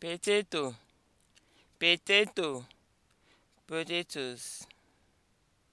potato, potato, potatoes.